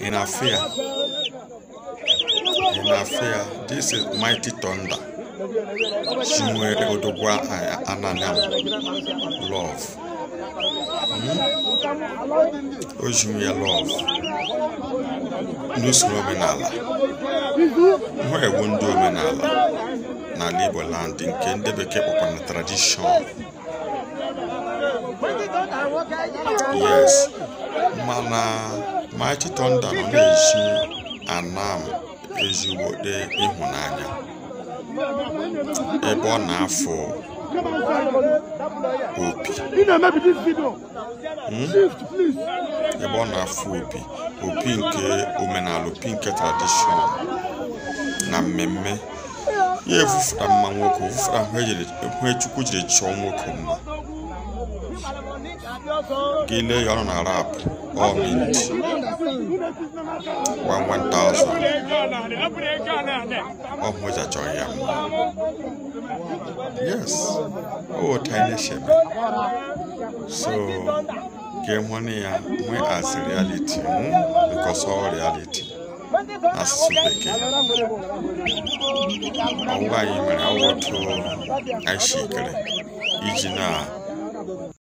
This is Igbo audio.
ị na-afụ ya ị na-afụ ya this is mighty thunder chi nwere odogwu love hmm? o ji ya love omenala nwa egwu ndị omenala n'ala nke ndị bekee kpọkwara tradishọn yes mana Mighty Thunder nọ na-esi Anam ezigbote ịhụnanya ebe ọ na-afụ opi hmm? ebe ọ na-afụ opi opi nke omenala opi nke tradishọn na mmemme ya evufụta mma nwoke ovufụta hụ e e chukwu jiri chọọ nwoke mma gị lee ya ọ na rapụ all mint One one thousand. I Yes. Oh, tiny So, game one as we as reality, hmm? because all reality. bekee ọwa anyị mere awọtụ iji na